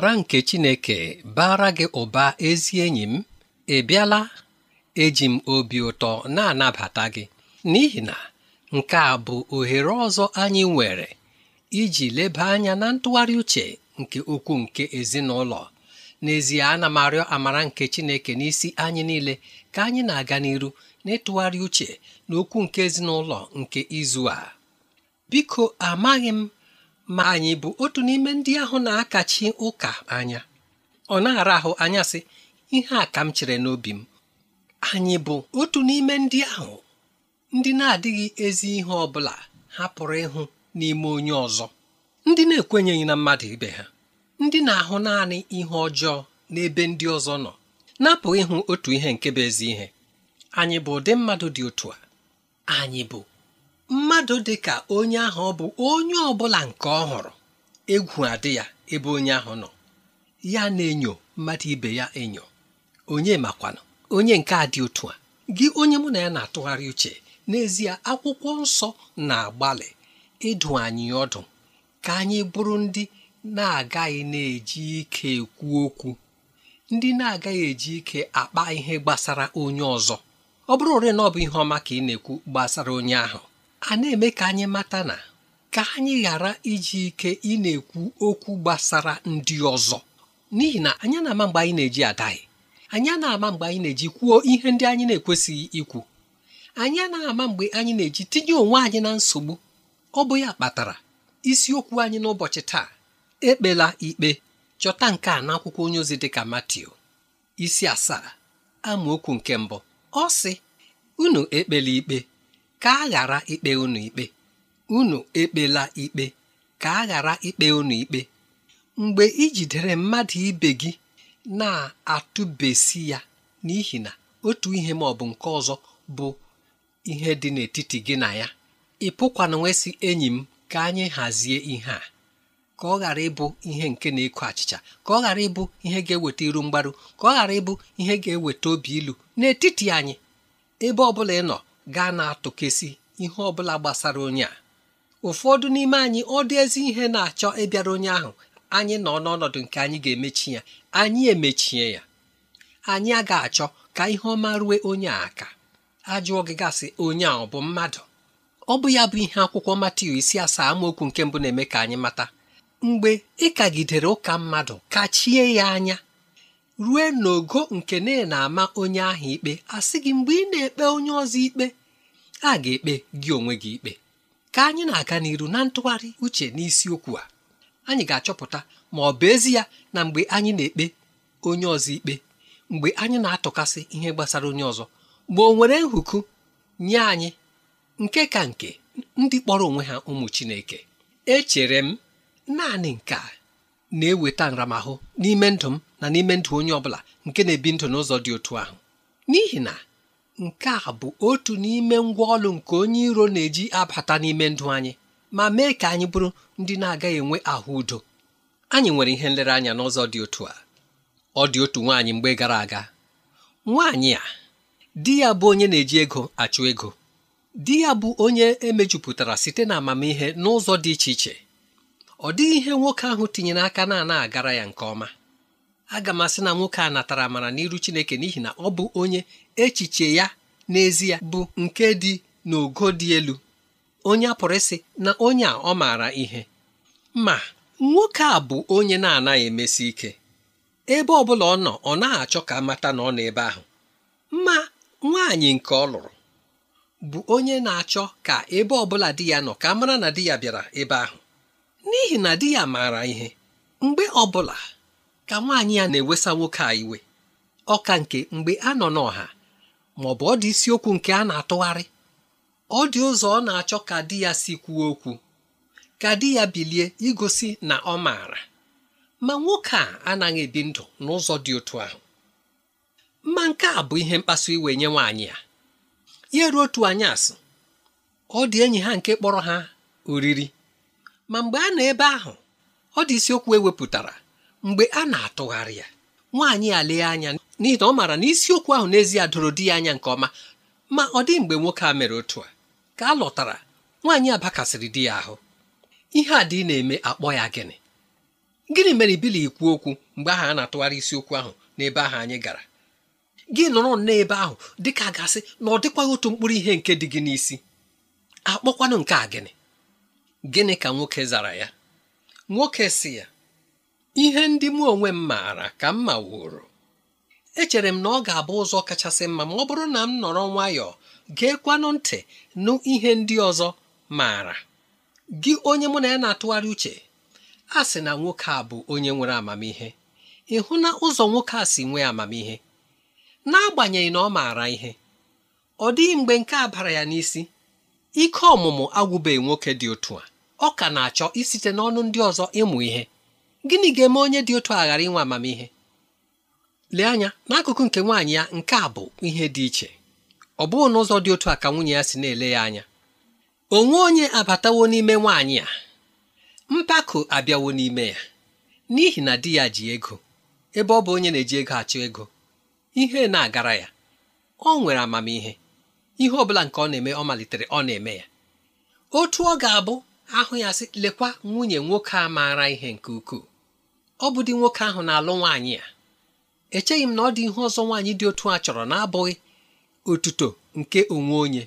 amara nke Chineke bara gị ụba ezi enyi m ị bịala eji m obi ụtọ na-anabata gị n'ihi na nke a bụ ohere ọzọ anyị nwere iji leba anya na ntụgharị uche nke okwu nke ezinụlọ n'ezie ana m arịọ amara nke Chineke n'isi anyị niile ka anyị na-aga n'iru n'ịtụgharị uche na okwu nke ezinụlọ nke izu a biko amaghị m ma anyị bụ otu n'ime ndị ahụ na-akachi ụka anya ọ na-ara ahụ anya sị ihe a ka m chere n'obi m anyị bụ otu n'ime ndị ahụ ndị na-adịghị ezi ihe ọ bụla ha pụrụ ịhụ n'ime onye ọzọ ndị na-ekwenyeghị na mmadụ ibe ha ndị na-ahụ naanị ihe ọjọọ n'ebe ndị ọzọ nọ na ịhụ otu ihe nke bụ ezi ihe anyị bụ ụdị mmadụ dị otu a anyị bụ mmadụ dị ka onye ahụ ọ bụ onye ọ bụla nke ọ hụrụ egwu adị ya ebe onye ahụ nọ ya na-enyo mmadụ ibe ya enyo onye makwana onye nke a dị otu a gị onye mụ na ya na-atụgharị uche n'ezie akwụkwọ nsọ na-agbalị ịdụ anyị ọdụ ka anyị bụrụ ndị na-agaghị na-eji ike ekwu okwu ndị na-agaghị eji ike akpa ihe gbasara onye ọzọ ọ bụrụ ore na ọ bụ ihe ọma ka ị na-ekwu gbasara onye ahụ a na-eme ka anyị mata na ka anyị ghara iji ike ị na-ekwu okwu gbasara ndị ọzọ n'ihi na anyị na-ama mgbe anyị na-eji adaghị anyị na-ama mgbe anyị na-eji kwuo ihe ndị anyị na-ekwesịghị ikwu anyị na-ama mgbe anyị na-eji tinye onwe anyị na nsogbu ọ bụ ya kpatara isiokwu anyị n'ụbọchị taa ekpela ikpe chọta nke a n'akwụkwọ onye ozi dịka Matiu isi asaa amaokwu nke mbụ ọ sị unu ekpela ikpe ka a ghara ikpe unu ikpe unu ekpela ikpe ka a ghara ikpe unu ikpe mgbe ijidere jidere mmadụ ibe gị na-atụbesi ya n'ihi na otu ihe ma ọ bụ nke ọzọ bụ ihe dị n'etiti gị na ya ị pụkwana nwesị enyi m ka anyị hazie ihe a ka ọ ghara ịbụ ihe nke na eku achịcha ka ọ ghara ịbụ ihe ga-eweta iru mgbaru ka ọ ghara ịbụ ihe ga-eweta obi ilu n'etiti anyị ebe ọ bụla ị nọ gaa na-atụkesị ihe ọ bụla gbasara onye a ụfọdụ n'ime anyị ọ dị ezi ihe na-achọ ịbịara onye ahụ anyị nọ n'ọnọdụ nke anyị ga-emechi ya anyị emechie ya anyị agaghị achọ ka ihe ọma rue onye a aka ajụọ gị gasị onye a ọ bụ mmadụ ọ bụ ya bụ ihe akwụkwọ Matiu isi asaa amaokwu nke mbụ na-eme ka anyị mata mgbe ị kagidere ụka mmadụ kachie ya anya rue n'ogo nke na-ama onye ahụ ikpe asị gị mgbe ị na-ekpe onye ọzọ ikpe a ga-ekpe gị onwe gị ikpe ka anyị na-aga n'iru na ntụgharị uche n'isiokwu a anyị ga-achọpụta ma ọ bụ ezi ya na mgbe anyị na-ekpe onye ọzọ ikpe mgbe anyị na-atụkasị ihe gbasara onye ọzọ mgbe o nwere nhụkụ nye anyị nke ka nke ndị kpọrọ onwe ha ụmụ Chineke echere m naanị nke a na-eweta nramahụ n'ime ndụ m na n'ime ndụ onye ọ bụla nke na-ebi ndụ n'ụzọ dị otu ahụ n'ihi na nke a bụ otu n'ime ngwa ọlụ nke onye iro na-eji abata n'ime ndụ anyị ma mee ka anyị bụrụ ndị na-agaghị enwe ahụ udo anyị nwere ihe nlereanya n'ụzọ dị otu a ọ dị otu nwaanyị mgbe gara aga nwaanyị a di ya bụ onye na-eji ego achụ ego di ya bụ onye emejupụtara site na amamihe n'ụzọ dị iche iche ọ dịghị ihe nwoke ahụ tinyere aka na-ana agara ya nke ọma aga m asị na nwoke a natara amara n'iru Chineke n'ihi na ọ bụ onye echiche ya n'ezie bụ nke dị n'ogo dị elu onye a pụrụ ịsị na onye a ọ maara ihe ma nwoke a bụ onye na-anaghị emesi ike ebe ọ bụla ọ nọ ọ na achọ ka mata na ọ nọ ebe ahụ ma nwaanyị nke ọ lụrụ bụ onye na-achọ ka ebe ọ bụla di ya nọ ka mara na di ya bịara ebe ahụ n'ihi na di ya maara ihe mgbe ọ bụla ka nwaanyị ya na-ewesa nwoke a iwe ọka nke mgbe a nọ n'ọha ma ọ bụ ọ dị isiokwu nke a na-atụgharị ọ dị ụzọ ọ na-achọ ka di ya si kwuo okwu ka di ya bilie igosi na ọ maara ma nwoke a anaghị ebi ndụ n'ụzọ dị otu ahụ mma nke a bụ ihe mkpasu iwe nye nwaanyị ya ya ruo otu anyasị ọ dị enyi ha nke kpọrọ ha oriri ma mgbe a nọ ebe ahụ ọ dị isiokwu ewepụtara mgbe a na-atụgharị ya nwaanyị a lee anya n'ihi na ọ maara na isiokwu ahụ n'ezie doro di ya anya nke ọma ma ọ dị mgbe nwoke a mere otu a ka a lọtara nwaanyị abakasịrị di ya ahụ ihe a dị na-eme akpọ ya gịnị gịnị mere ibili ikwu okwu mgbe ahụ a na-atụgharị isiokwu ahụ n'ebe ahụ anyị gara gị nọrọ n'ebe ahụ dị ka gasị na ọ dịkwaghị otu mkpụrụ ihe nke dị gị n'isi akpọkwanụ nke a gịnị gịnị ka nwoke zara ya nwoke si ya ihe ndị mụ onwe m maara ka m wuru echere m na ọ ga-abụ ụzọ kachasị mma ma ọ bụrụ na m nọrọ nwayọọ geekwanụ ntị nụ ihe ndị ọzọ maara gị onye mụ na ya na-atụgharị uche a sị na nwoke a bụ onye nwere amamihe ị hụ na ụzọ nwoke a si nwee amamihe n'agbanyeghị na ọ maara ihe ọ dịghị mgbe nke a bara ya n'isi ike ọmụmụ agwụbeghị nwoke dị otu a ọ ka na-achọ isite n'ọnụ ndị ọzọ ịmụ ihe gịnị ga-eme onye dị otu a ghara inwe amamihe lee anya n'akụkụ nke nwaanyị ya nke a bụ ihe dị iche ọ bụghị n'ụzọ dị otu a ka nwunye ya si na-ele ya anya onwe onye abatawo n'ime nwaanyị a mpako abịawo n'ime ya n'ihi na di ya ji ego ebe ọ bụ onye na-eji ego achọ ego ihe na-agara ya ọ nwere amamihe ihe ọ bụla nke ọ na-eme ọ malitere ọ na-eme ya otu ọ ga-abụ ahụ ya sị lekwa nwunye nwoke a maara ihe nke ukwuu ọ bụ dị nwoke ahụ na-alụ nwaanyị a echeghị m na ọ dị ihe ọzọ nwaanyị dị otu a chọrọ na-abụghị otuto nke onwe onye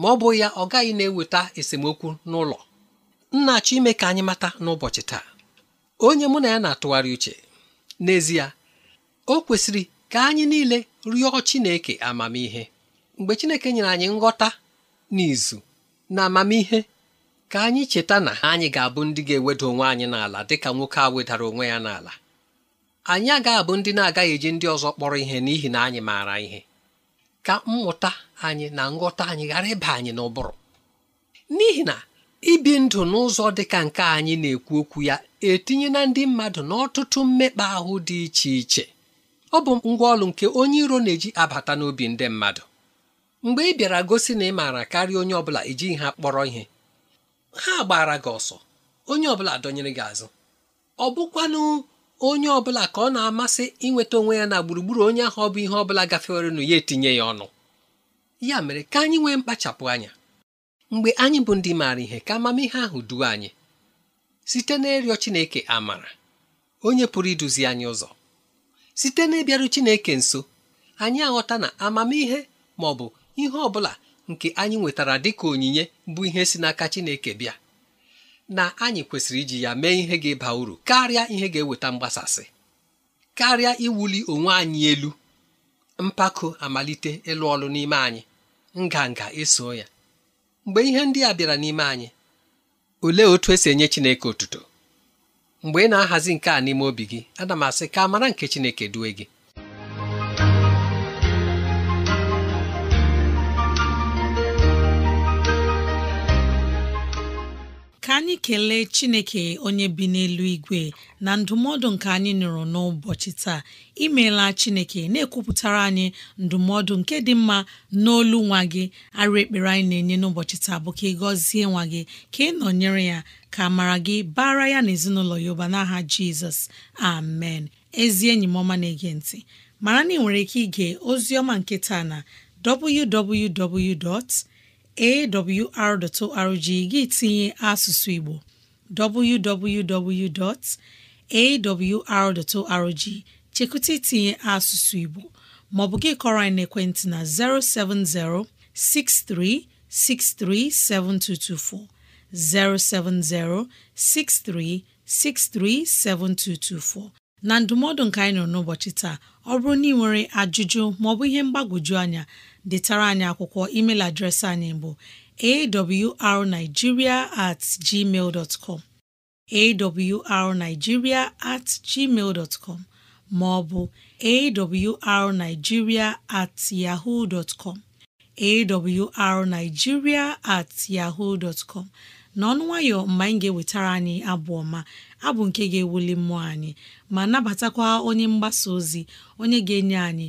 ma ọ bụ ya ọ gaghị na-eweta esemokwu n'ụlọ nna achọ ime ka anyị mata n'ụbọchị taa onye mụ na ya na-atụgharị uche n'ezie o kwesịrị ka anyị niile rịọ Chineke amamihe mgbe Chineke nyere anyị nghọta n'izu na amamihe ka anyị cheta na anyị ga-abụ ndị ga-eweda onwe anyị n'ala dịka nwoke a wedara onwe ya n'ala anyị agaghị abụ ndị na-agaghị eji ndị ọzọ kpọrọ ihe n'ihi na anyị maara ihe ka mmụta anyị na nghọta anyị ghara ịba anyị n'ụbụrụ n'ihi na ibi ndụ n'ụzọ dịka nke anyị na-ekwu okwu ya etinye na ndị mmadụ n'ọtụtụ mmekpa ahụ dị iche iche ọ bụ ngwa ọlụ nke onye iro na-eji abata n'obi ndị mmadụ mgbe ị bịara gosi na ị maara karịa onye ọ bụla ejighị ha kpọrọ ihe ha gbara gị ọsọ onye ọbụla dọnyere gị azụ ọ bụkwanụ onye ọbụla ka ọ na-amasị inweta onwe ya na gburugburu onye ahụ ọ bụ ihe ọbụla gafewerenụ ya etinye ya ọnụ ya mere ka anyị nwee mkpachapụ anya mgbe anyị bụ ndị maara ihe ka amamihe ahụ duo anyị site n'ịrịọ Chineke amara onye pụrụ iduzi anyị ụzọ site n'ịbịaru Chineke nso anyị aghọta na amamihe ma ọ bụ ihe ọ bụla nke anyị nwetara dịka onyinye bụ ihe si n'aka Chineke bịa na anyị kwesịrị iji ya mee ihe ga-eba uru karịa ihe ga-eweta mgbasasị karịa iwuli onwe anyị elu mpako amalite ịlụ ọlụ n'ime anyị nganga eso ya mgbe ihe ndị a bịara n'ime anyị olee otu esi enye Chineke otuto mgbe ị na-ahazi nke a n'ime obi gị ana m asị ka amara nke Chineke due gị anyị kelee chineke onye bi n'elu igwe na ndụmọdụ nke anyị nụrụ n'ụbọchị taa imeela chineke na-ekwupụtara anyị ndụmọdụ nke dị mma n'olu nwa gị arụ ekpere anyị na-enye n'ụbọchị taa bụ ka ị gọzie nwa gị ka ị nọnyere ya ka mara gị bara ya na ezinụlọ ya ụba n'aha jizọs amen ezi enyi m ọma na-ege ntị mara na ị nwere ike ige ozi ọma nke taa na www. awr.org gị tinye asụsụ Igbo www.awr.org chekụta itinye asụsụ Igbo maọbụ gị kọrọ anyị n'ekwentị na 070 6363 7224 070 6363 7224 na ndụmọdụ nke anyị nọ n'ụbọchị taa ọ bụrụ na ị nwere ajụjụ maọbụ ihe mgbagwoju anya detara anyị akwụkwọ email adreesị anyị bụ awrnigeria at gmail com awrnigeria at gmail com ma ọ bụ awrnigeria at yahoo dot com awrnigeria at yahoo dot com n'ọnụ nwayọ mgbe anyị ga-ewetara anyị abụ ọma abụ nke ga-ewuli mmụọ anyị ma nabatakwa onye mgbasa ozi onye ga-enye anyị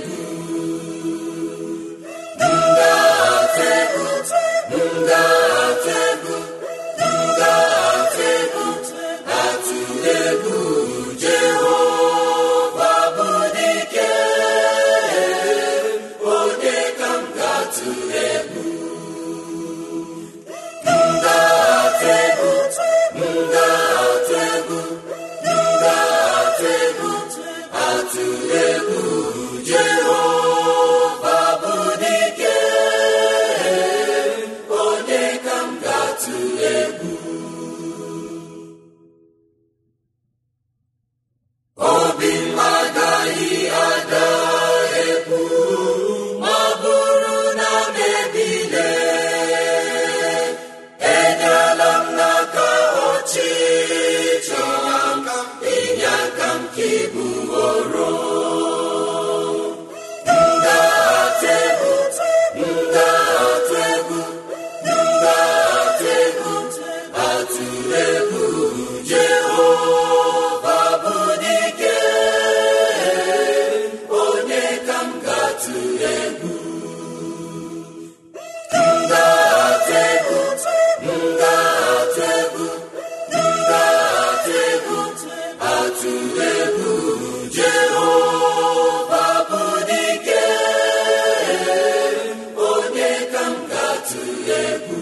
Egwu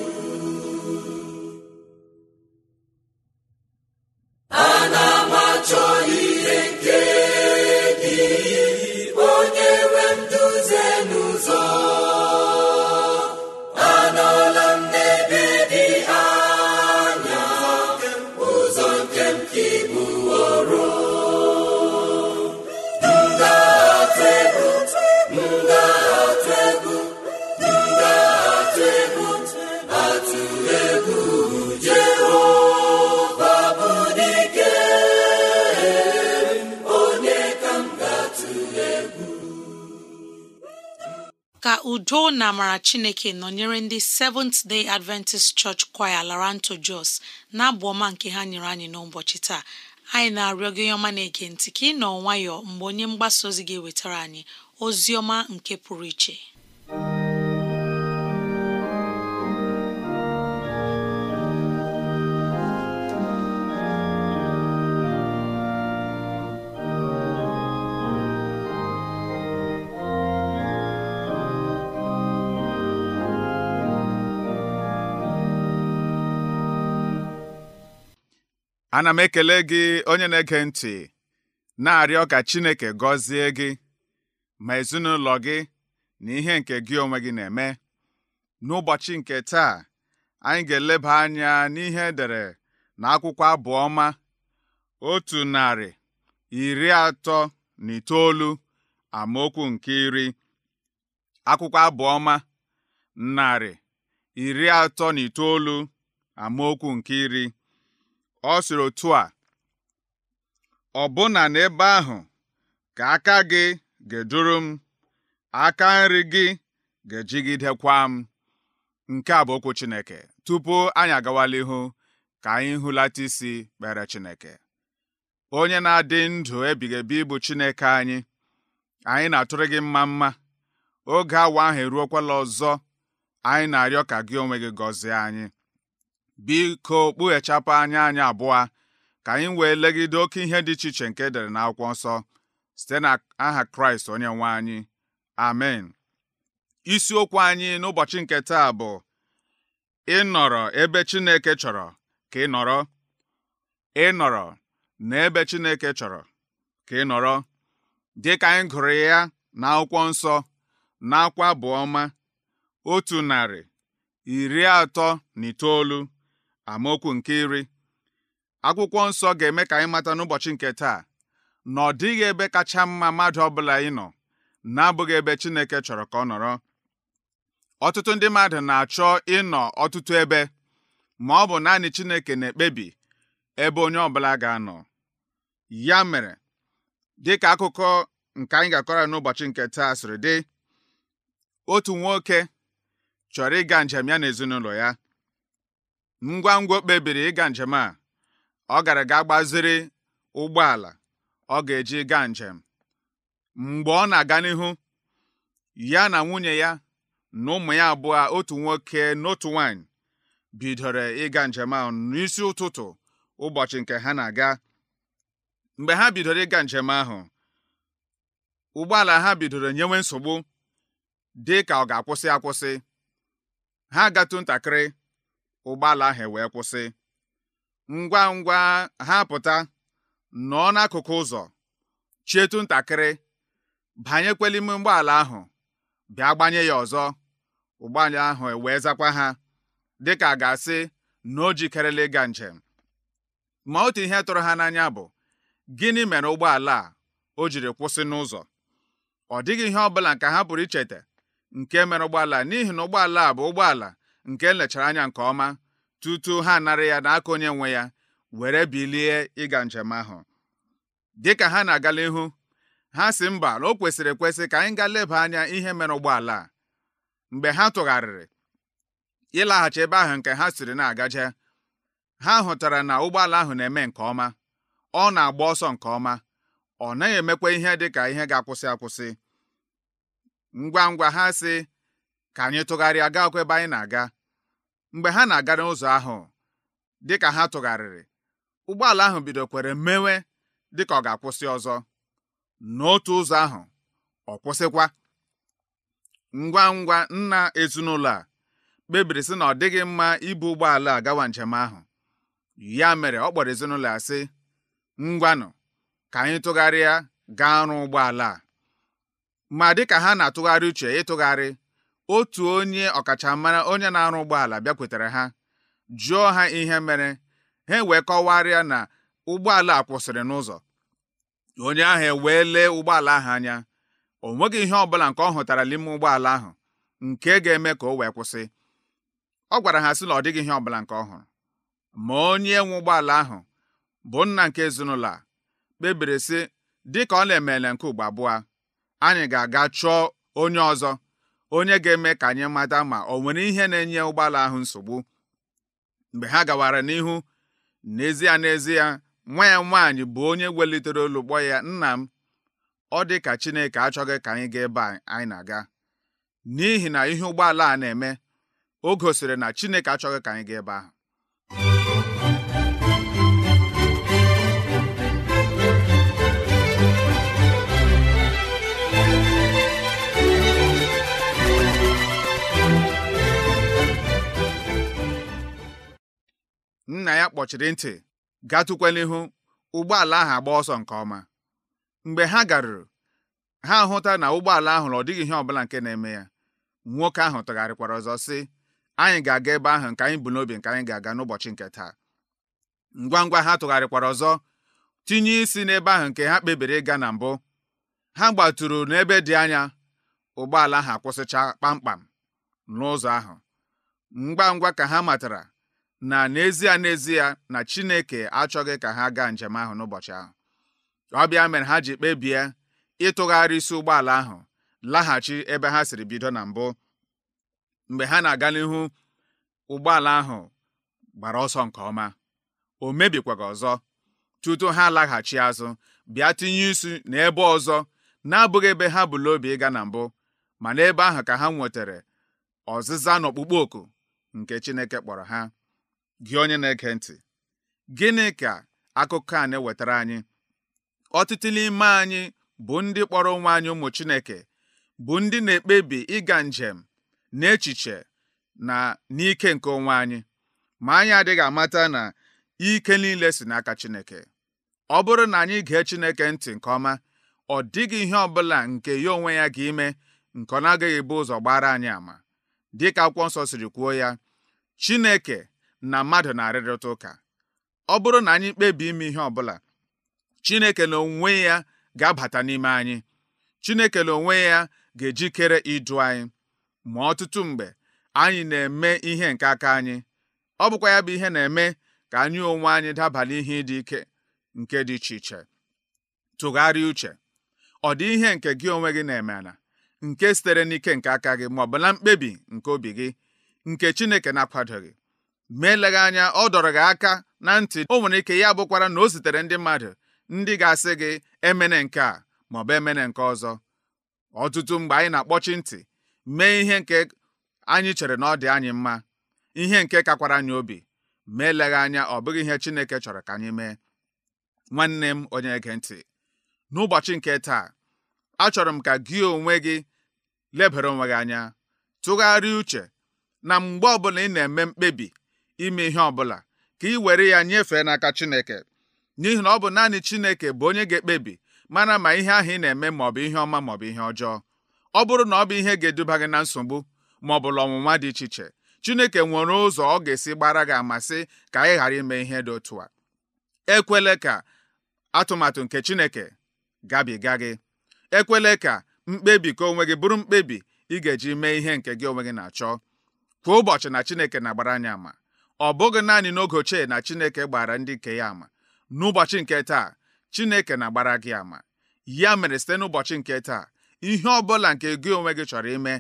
amara chineke nọnyere ndị Seventh Day Adventist Church Choir Laranto Jos na-abụ ọma nke ha nyere anyị n'ụbọchị taa anyị na-arịọ gị ọma na-ege ntị ka ị nọ nwayọọ mgbe onye mgbasa ozi ga-ewetara anyị ozi ọma nke pụrụ iche ana m ekele gị onye na-ege ntị na-arịọ ka Chineke gọzie gị ma ezinụlọ gị na ihe nke gị onwe gị na-eme n'ụbọchị nke taa anyị ga-eleba anya n'ihe dere na akwụkwọ abụọma otu narị iri atọ na itoolu amaokwu nke iri akwụkwọ abụọma narị iri atọ na itoolu amaokwu nke iri ọ sịrị otu a ọbụna n'ebe ahụ ka aka gị ga-eduru m aka nri gị ga-ejigidekwa m nke a bụ okwu Chineke tupu anyị agawala ihu ka anyị hụlata isi kpere Chineke onye na-adị ndụ ebighị ebi bụ Chineke anyị anyị na-atụrụ gị mma mma oge awa ahụ eruokwala ọzọ anyị na-arịọ ka gị onwe gị gọzie anyị biko kpughechapụ anya anyị abụọ ka anyị wee legide oke ihe dị iche iche nke edere n'akwụkwọ nsọ site na aha kraịst onye nwe anyị amen isiokwu anyị n'ụbọchị nke taa bụ ịnọrọ ebe chineke chọrọ ka ị nọrọ ịnọrọ n'ebe chineke chọrọ ka ị nọrọ dịka anyị gụrụ ya na akwụkwọ nsọ na akwa bụ ọma otu narị iri atọ na itoolu amaokwu nke iri akwụkwọ nsọ ga-eme ka anyị mata n'ụbọchị nke taa na ọ dịghị ebe kacha mma mmadụ ọbụla nọ na-abụghị ebe Chineke chọrọ ka ọ nọrọ ọtụtụ ndị mmadụ na-achọ ịnọ ọtụtụ ebe ma ọ bụ naanị Chineke na-ekpebi ebe onye ọbụla ga-anọ ya mere dịka akụkọ nke anyị ga-akọrọ n'ụbọchị nke taa sịrị dị otu nwoke chọrọ ịga njem ya na ezinụlọ ya ngwa ngwa o kpebiri ịga njem a ọ gara ga gbaziri ụgbọala ọ ga-eji gaa njem mgbe ọ na-aga n'ihu ya na nwunye ya na ụmụ ya abụọ otu nwoke n'otu nwanyị bidoro ịga njem ahụ n'isi ụtụtụ ụbọchị nke ha na-aga mgbe ha bidoro ịga njem ahụ ụgbọala ha bidoro nyewe nsogbu dị ka ọ ga-akwụsị akwụsị ha gatụ ntakịrị ụgbọala ahụ e wee kwụsị ngwa ngwa ha pụta nọọ n'akụkụ ụzọ chietu ntakịrị banyekwela ime ụgbọala ahụ bịa gbanye ya ọzọ ụgbọala ahụ e wee zakwa ha dịka a ga-asị na o jikerela ịga njem ma otu ihe tụrụ ha n'anya bụ gịnị mere ụgbọala a o jiri kwụsị n'ụzọ ọ dịghị ihe ọbụla nke ha pụrụ icheta nke mere ụgbọala n'ihi na ụgbọala a bụ ụgbọala nke e lechara anya nke ọma tutu ha narị ya n'aka onye nwe ya were bilie ịga njem ahụ Dị ka ha na-agala ihu ha si mba na o kwesịrị ekwesị ka anyị gaa leba anya ihe mere ụgbọala a mgbe ha tụgharịrị ịlaghachi ebe ahụ nke ha siri na-agaje ha hụtara na ụgbọala ahụ na-eme nke ọma ọ na-agba ọsọ nke ọma ọ naghị emekwa ihe dị ka ihe ga-akwụsị akwụsị ngwa ngwa ha si ka anyị tụgharịa gaakwa ebe anyị na-aga mgbe ha na-aga n'ụzọ ahụ dịka ha tụgharịrị ụgbọala ahụ bidokwere mewe dịka ọ ga-akwụsị ọzọ n'otu ụzọ ahụ ọ kwụsịkwa ngwa ngwa nna ezinụlọ a kpebiri sị na ọ dịghị mma ibu ụgbọala a gawa njem ahụ ya mere ọ kpọrọ ezinụlọ ya sị ngwanụ ka anyị tụgharịa gaa ọrụ ụgbọala a ma dịka ha na-atụgharị uche ịtụgharị otu onye ọkachamara onye na-arụ ụgbọala bịakwutere ha jụọ ha ihe mere ha wee kọwarịa na ụgbọala a kwụsịrị n'ụzọ onye ahụ ewee lee ụgbọala ahụ anya o nweghị ihe ọbụla nke ọ hụtara n'ime ụgbọala ahụ nke ga-eme ka o wee kwụsị ọ gwara ha sị na ọ dịghị ihe ọbụla nke ọ hụrụ ma onye nwe ụgbọala ahụ bụ nna nke ezinụlọ a kpebiri sị dịka ọ na-emele nke ugbo abụọ anyị ga-aga chọọ onye ọzọ onye ga-eme ka anyị mata ma ọ nwere ihe na-enye ụgbọala ahụ nsogbu mgbe ha gawara n'ihu n'ezie n'ezie nwa ya nwaanyị bụ onye welitere olu ya nna m ọ dị ka Chineke achọghị ka anyị gaa ebe anyị na-aga n'ihi na ihe ụgbọala a na-eme o gosiri na Chineke achọghị ka anyị gaa ebe ahụ nna ya kpọchiri ntị gatụkwa ụgbọala ahụ agba ọsọ nke ọma mgbe ha garuru ha hụta na ụgbọala ahụ ihe ọ dịghị ihe ọbụla nke na-eme ya nwoke ahụ tụgharịkwara ọzọ sị anyị ga-aga ebe ahụ nke anyị bụ n'obi nke anyị ga-aga n'ụbọchị nke taa ngwa ngwa ha tụgharịkwara ọzọ tinye isi n'ebe ahụ nke ha kpebiri ịga na mbụ ha gbaturu n'ebe dị anya ụgbọala ahụ akwụsịcha kpamkpam n'ụzọ ahụ ngwa ngwa ka ha matara na n'ezie n'ezie na Chineke achọghị ka ha gaa njem ahụ n'ụbọchị ahụ ọ bịa mere ha ji kpebie ịtụgharị isi ụgbọala ahụ laghachi ebe ha siri bido na mbụ mgbe ha na-aga n'ihu ụgbọala ahụ gbara ọsọ nke ọma o mebikwaga ọzọ tutu ha laghachi azụ bịa tinye isi n'ebe ọzọ na-abụghị ebe ha bụ obi ịga na mbụ ma n'ebe ahụ ka ha nwetara ọzịza n'ọkpụkpọ oku nke Chineke kpọrọ ha gị onye na-ege ntị gịnị ka akụkọ a na-ewetara anyị ọtụtụ n'ime anyị bụ ndị kpọrọ onwe anyị ụmụ Chineke bụ ndị na-ekpebi ịga njem n'echiche na n'ike nke onwe anyị ma anyị adịghị amata na ike niile si n'aka Chineke ọ bụrụ na anyị gee Chineke ntị nke ọma ọ dịghị ihe ọ bụla nke ya onwe ya ga-ime nke ọ na-agaghị ebu ụzọ gbara anyị ama dịka akwụkwọ nsọ siri kwuo ya Chineke na mmadụ na-arịrịta ụka ọ bụrụ na anyị kpebi ime ihe bụla, Chineke na onwe ya ga-abata n'ime anyị Chineke na onwe ya ga-ejikere idu anyị ma ọtụtụ mgbe anyị na-eme ihe nke aka anyị ọ bụkwa ya bụ ihe na-eme ka anyị onwe anyị daba n'ihe dị ike nke dị iche iche tụgharịa uche ọ dị ihe nke gị onwe gị na-eme na nke sitere n'ike nke aka gị ma ọ na mkpebi nke obi gị nke Chineke na-akwadoghị mee eleghị anya ọ dọrọ gị aka na ntị o nwere ike ya bụkwara na o zitere ndị mmadụ ndị ga-asị gị emene nke a maọbụ emene nke ọzọ ọtụtụ mgbe anyị na-akpọchi ntị mee ihe nke anyị chere na ọ dị anyị mma ihe nke kakwara anyị obi mee eleghị anya ọ bụghị ihe Chineke chọrọ ka anyị mee nwanne m onye ege ntị n'ụbọchị nke taa achọrọ m ka gị onwe gị lebara onwe gị anya tụgharịa uche na mgbe ọbụla ị na-eme mkpebi ime ihe ọbụla ka ị were ya nyefee n'aka Chineke n'ihi na ọ bụ naanị Chineke bụ onye ga-ekpebi mana ma ihe ahụ ị na-eme maọbụ ihe ọma maọbụ ihe ọjọọ ọ bụrụ na ọ bụ ihe ga-eduba gị na nsogbu maọbụ ọnwụnwa dị iche iche Chineke nwere ụzọ ọ ga-esi gbara gị amasị ka anyị ghara ime ihe dị otu a ekwele ka atụmatụ nke Chineke gabiga gị ekwele ka mkpebi ka onwe gị bụrụ mkpebi ị ga-eji mee ihe nke gị onwe gị na-achọ kwa ụbọchị na Chineke na-agbara anyị ama ọ bụghị naanị n'oge ochie na Chineke gbara ndị nke ya ama n'ụbọchị nke taa Chineke na-agbara gị ama ya mere site n'ụbọchị nke taa ihe ọ bụla nke gị onwe gị chọrọ ime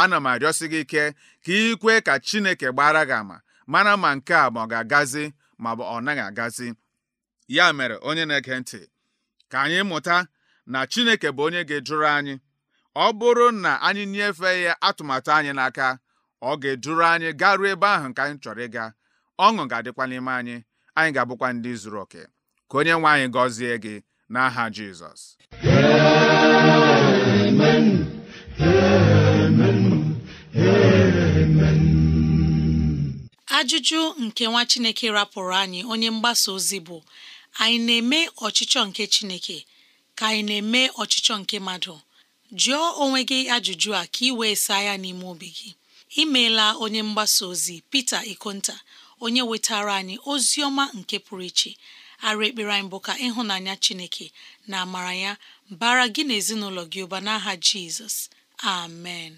ana m arịọsi gị ike ka ị kwee ka Chineke gbara gị ama mara ma nke a ma ọ ga-agazi ma ọ naghị agazi ya mere onye na-ege ntị ka anyị mụta na Chineke bụ onye ga-eduru anyị ọ bụrụ na anyị nyefee ya atụmatụ anyị n'aka ọ ga-eduru anyị garuo ebe ahụ nke anyị chọrọ ịga ọṅụ ga-adịkwa n'ime anyị anyị ga-abụkwa ndị zuru oke ka onye nwe anyị gọzie gị n'aha Jizọs amen amen amen ajụjụ nke nwa Chineke rapụrụ anyị onye mgbasa ozi bụ anyị na-eme ọchịchọ nke Chineke ka anyị na-eme ọchịchọ nke mmadụ jụọ onwe gị ajụjụ a ka ị wee saa ya n'ime obi gị imeela onye mgbasa ozi Pita Ikonta onye wetara anyị ozi ọma nke pụrụ iche arụ ekpere anyị bụ ka ịhụnanya chineke na amara ya bara gị na ezinụlọ gị ụba n'aha jizọs amen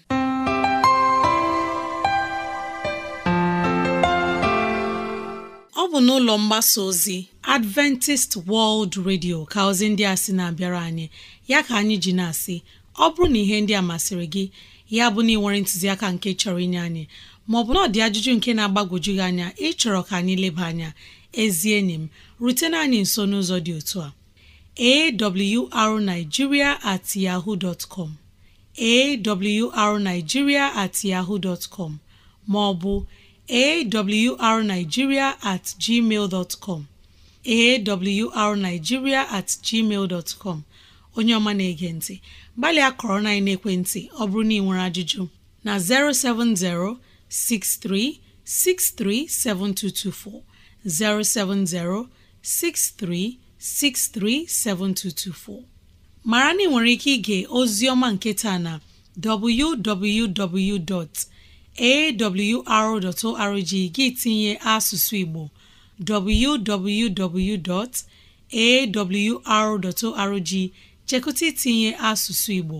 ọ bụ n'ụlọ mgbasa ozi Adventist World Radio ka ozi ndị a sị na-abịara anyị ya ka anyị ji na-asị ọ bụrụ na ihe ndị a masịrị gị ya bụ na ị nwere ntụziaka nke chọrọ inye anyị ma maọbụ na ọ dị ajụjụ nke na-agbagwoju gị anya ịchọrọ ka anyị leba anya ezi enyi m rutena anyị nso n'ụzọ dị otu a awrnigeria at yahoo com arigiria at com maọbụ arigiria at gmail com com onye ọma na-ege ntị gbalịa akọrọ na ekwentị ọ bụrụ na ị nwere ajụjụ na 070 07063637224 mara na ị nwere ike ige ozi ọma nke na www.awr.org gị tinye asụsụ Igbo www.awr.org chekụta itinye asụsụ Igbo